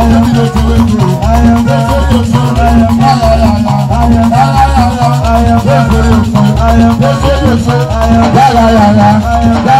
I am the the the the I I I I I I I am am. am. am. am am am.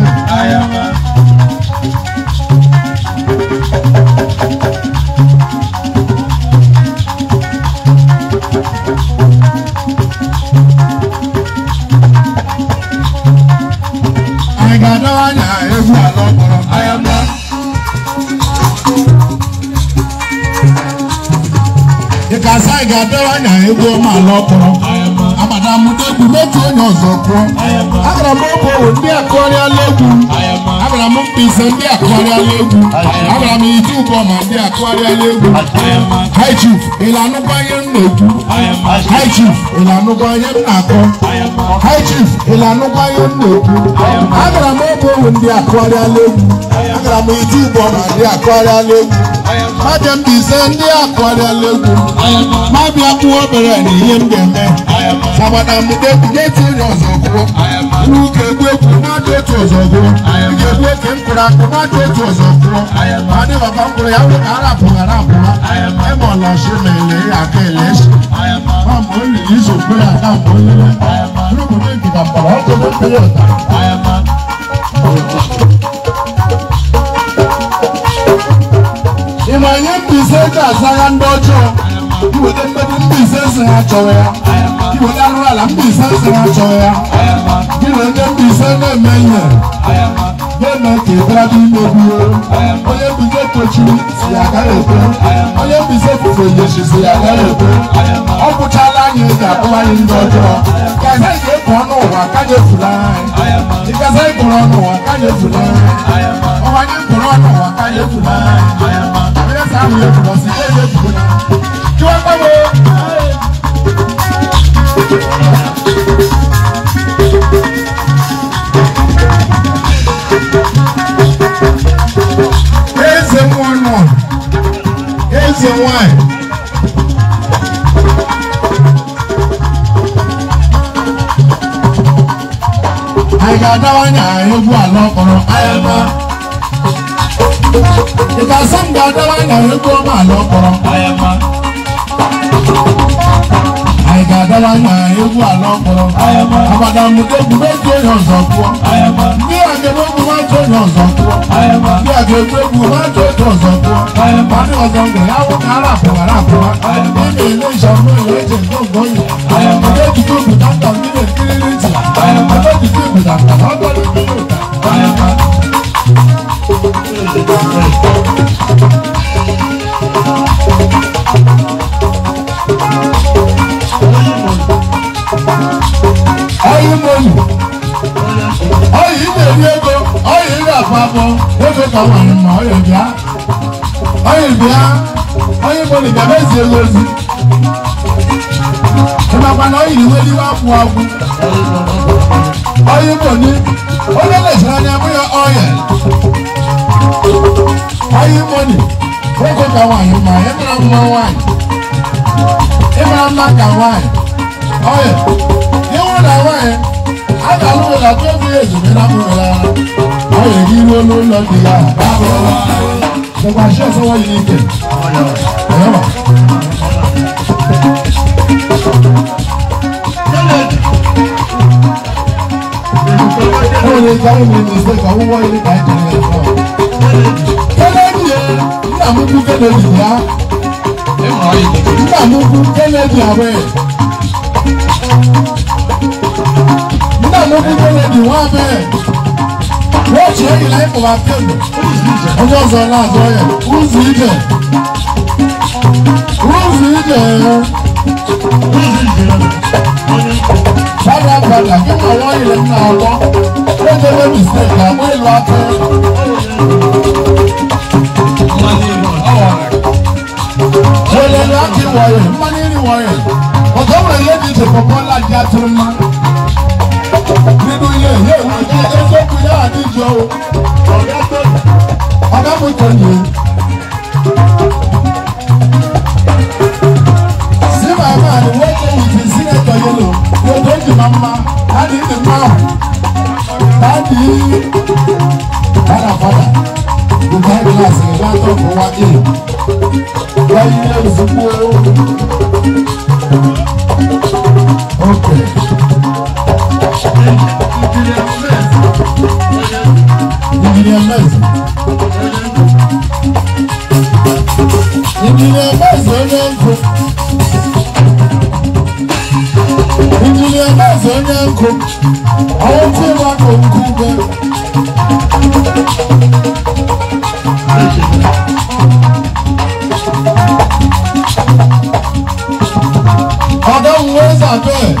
dịkasị anyị anya egwu ọma ala ọkpọrọ mụta egwu n'otu onye ọzọ kpụọ agara m obowo ndị egwu Abraham Mpisa ndị akụgharị ala egwu Abraham Ijubọma ndị akụgharị ala egwu High Chief ịlanụkwanye m na-ekwu High Chief ịlanụkwanye m na-akọ High Chief ịlanụkwanye m na-ekwu agara m oge ohu ndị akụgharị ala egwu agara m Ijubọma ndị akụgharị ala egwu Majem Mpisa ndị akụgharị ala egwu ma bịa kpụọ obere na ihe m ga-eme sabana mudekwu na-etinye ọzọgwụ uke kwekwu mmadụ otu ọzọgwụ ike kwoke mkpụrụ akpụ mmadụ otu ọzọgwụ adị baba mkpụrụ ya bụ ka arapụghị arapụwa emọlọshi na ele ya aka eleshi mamụ olili izogbe ya na mgbe olile rụbụrụ egida mkpọrọ ọkụ mkpụrụ ụtara ịma ihe mbaise ga-aza ya ndị ọjọọ iweta mkpebi mbaise si ha chọrọ ya mkpụrụ ala mbise sara chọ ya gịnị ndị mbise na-eme ihe ya na ka ịbara dị imegbuo onye mbise tochiri si ya gara ekwe onye mbise fufe yechi si ya gara ekwe ọ bụchala anyị ga-akpụwa anyị ndị ọjọọ ka anyị ga-ekpu ọnụ ụwa ka anyị efula anyị ịgaza ịkpụrụ ọnụ ụwa ka anyị efula anyị ọwa anyị kpụrụ ọnụ ụwa ka anyị efula anyị onye sa ahụ efula si ya ya efugo ya chiwa gbagboo ẹ̀. àyà dáwọ́ ní àárín ogun àlọ́ ọkọ̀rọ̀ ayẹmọ. ìgbà sọ́ǹgbà dáwọ́ ní àárín ogun ọmọ àlọ́ ọkọ̀rọ̀ ayẹmọ. àyà dáwọ́ ní àárín ogun àlọ́ ọkọ̀rọ̀ ayẹmọ. àbàdàn mú dégun méjì èèyàn zọ̀ fún ọ ayẹmọ agbẹ̀gbẹ̀gbẹ̀ wá tó yàn ọ̀sán tó. Bí agbẹ̀gbẹ̀gbẹ̀ wá tó tó ọ̀sán tó. Wọ́n ní ọ̀sán gbẹ̀ yàwó kan aráàfọ̀ aráàfọ̀ wa. Nínú ilé ìṣàmúlò ìwé ìjẹ̀ gbọ̀ngàn yìí. Ọjọ́ ìdíkọ̀ ìgbìtàkùn nílẹ̀ kírírí tì. Ọjọ́ ìdíkọ̀ ìgbìtàkùn àpapọ̀ wótò kọ̀wà mọ̀ ọ̀yọ̀ bíá ọ̀yọ̀ bíá ọ̀yọ̀ ìbò nìkan bẹ́ẹ̀ sì èlò sí. ìpàpàna ọ̀yọ̀ ìwé ní wàá fún ọkùn ọ̀yọ̀ ìbò ní olóòlè sọ̀rọ̀ ní abúlé ọ̀yẹ̀ ọ̀yọ̀ ìbò ní wótò kọ̀wà mọ̀ ọ̀yọ̀ ìbò mọ̀ wáyì ìbò mọ̀ kà wáyì ọ̀yọ̀ yẹ́wọ́n dà wáyì àgbà lóore làtọ́ fi èzùmí náà mú mi rárá àwọn èyí ló ló lọ nìyà báwo wá. ṣọba ṣé ọsọwọ yìí ń tẹ ọyọ wa. ó lè jáwé mi ní ìṣe kan wọ́n ilé kan jẹ́ ẹ̀ fún ọ. kẹ́lẹ́dì ẹ̀ nígbà mú kú kẹ́lẹ́dì yá. nígbà mú kú kẹ́lẹ́dì àwẹ̀. nígbà mú kú kẹ́lẹ́dì wọ́n abẹ́. What you really like Who's my Who's Ọjọ́ Who's náà sọ yẹn, who's with them? Who's with them? Bàbá padà kí wọ́n wọ́n ilẹ̀ ní àwọ̀, ó jẹ́ wé mistake àmọ́ ìlú akẹ́. Wọ́n lè láti wọ̀nyẹ̀, mọ́ni ni wọ̀nyẹ̀, ọ̀tọ́ wọ̀nyẹ̀ ti tẹ̀ pọ̀pọ̀ láti àtúrọ̀ máa. àwọn tí ó máa kọ̀ òkú gan. ọ̀dọ́ òun wọ́n sàbẹ̀.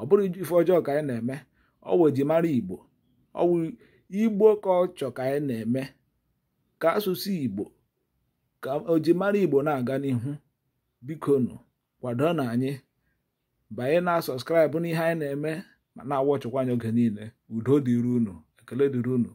ọ bụrụ ife ọjọọ ka anyị na-eme ọwụ ejimara igbo ọwụ igbo ka ọ chọ ka anyị na-eme ka asụsụ igbo ka ojimara igbo na-aga n'ihu bikonu kwado na anyị banye na sọskraịbụ n'ihe anyị na-eme ma na ọchọkwa anyị oge niile udo dịrị unu ekele dịrị unu